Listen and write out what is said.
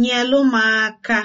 nyelụ m aka